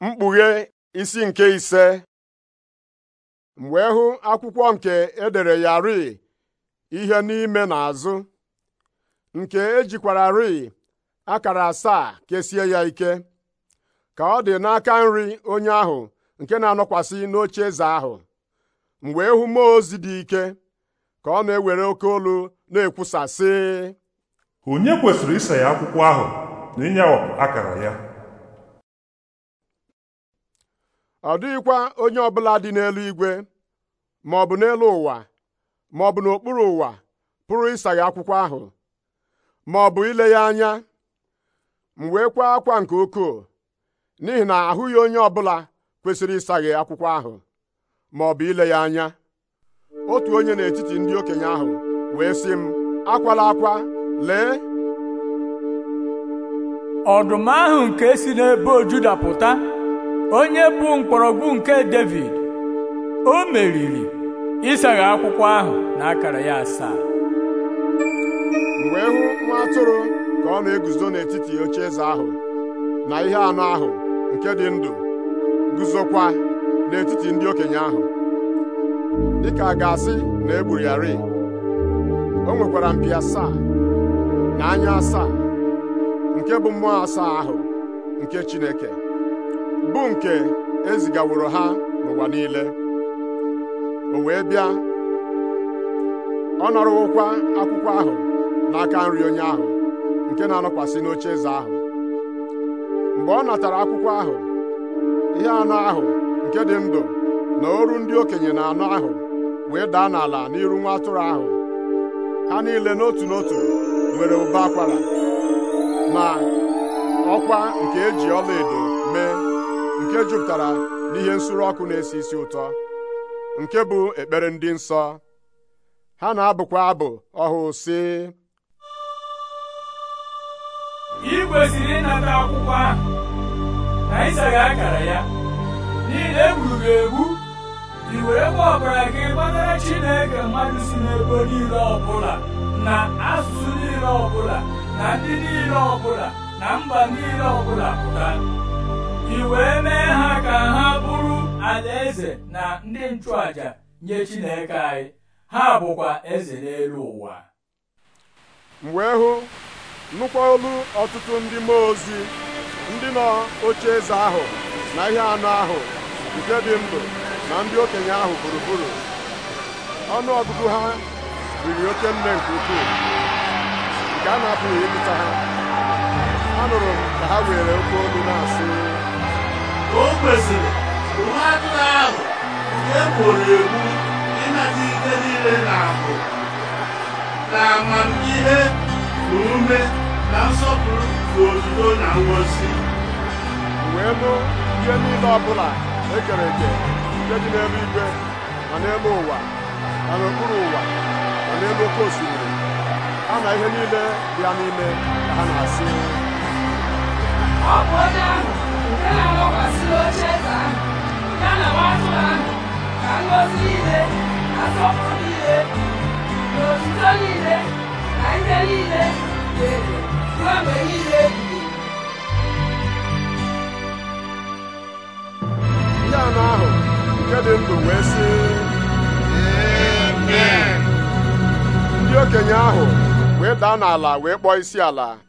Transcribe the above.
mkpughe isi nke ise mgbe hụ akwụkwọ nke edere ya rii ihe n'ime na n'azụ nke ejikwara ri akara asaa kesie ya ike ka ọ dị n'aka nri onye ahụ nke na-anọkwasị n'oche eze ahụ mgbe ịhụ e mmụọ ozi dị ike ka ọ na-ewere oke olu na-ekwusa sị onye kwesịrị ise ya akwụkwọ ahụ na ịnyawapụ akara ya ọ dịghịkwa onye ọbụla dị n'elu igwe ma ọ bụ n'elu ụwa ma ọ bụ n'okpuru ụwa pụrụ ịsaghe akwụkwọ ahụ ma ọ bụ ile ya anya m wee kwaa akwa nke ukwuu n'ihi na ahụghị onye ọbụla kwesịrị ịsaghe akwụkwọ ahụ ma ọ bụ ile ya anya otu onye n'etiti ndị okenye ahụ wee sị m akwala akwa lee ọdụm ahụ nke si n'ebe pụta onye bụ mkpọrọgwụ nke David o meriri ịsaghe akwụkwọ ahụ na akara ya asaa Mgbe wee hụ nwa atụrụ ka ọ na-eguzo n'etiti ocheeze ahụ na ihe anụ ahụ nke dị ndụ guzokwa n'etiti ndị okenye ahụ dịka a ga-asị na egburu ya ri o nwekwara mpi asaa na anya asaa nke bụ mmụọ asaa ahụ nke Chineke bu nke ezigaworo ha n'ụwa niile o wee bịa ọ nọrọwokwa akwụkwọ ahụ n'aka nri onye ahụ nke na-anọkwasị n'oche eze ahụ mgbe ọ natara akwụkwọ ahụ ihe anụ ahụ nke dị ndụ na oru ndị okenye na anụ ahụ wee daa n'ala n'iru nwa atụrụ ahụ ha niile n'otu n'otu nwere ụbọ akwara ma ọkwa nke eji ọlaedo mee nke jupụtara n'ihe nsuru ọkụ na-esi isi ụtọ nke bụ ekpere ndị nsọ ha na-abụkwa abụ ọhụụ sị ị kwesịrị ịnata akwụkwọ ahụ na ịsaghị akara ya n'ihi na egburu gị egbu ị werekwa ọbara gị gbatara Chineke mmadụ si n'ebo niile ọbụla na asụsụ niile ọbụla na ndị niile ọbụla na mba niile ọbụla pụta alaeze na ndị nchụàjà nye Chineke anyị ha bụkwa eze n'elu ụwa m wee hụ nnukwu olu ọtụtụ ndị mmụọ ozi ndị nọ oche eze ahụ na ihe anụ ahụ nke dị ndụ na ndị okenye ahụ gburugburu ọnụ ọgụgụ ha riri oke nne nke ukwuu nke a na-apụghị ịpụta ha nụrụ m ka ha were oke olu na-asị egburu egbu ịnata ike niile na ahụ na amamihe na ume na nsọpụrụ bụ otuto na ngọzi wee bụ ihe niile ọbụla ekere eke nke dị n'ebe igwe ma n'ebe ụwa na n'okpuru ụwa ma n'ebe oke osimiri ha na ihe niile bịa n'ime ka ha na-asị ọ bụ onye ọkụ niile na otuto niile na ihe niile na-ere ruo mgbe niile anụ ahụ nke dị ndụ wee sị ndị okenye ahụ wee daa n'ala wee kpọọ isi ala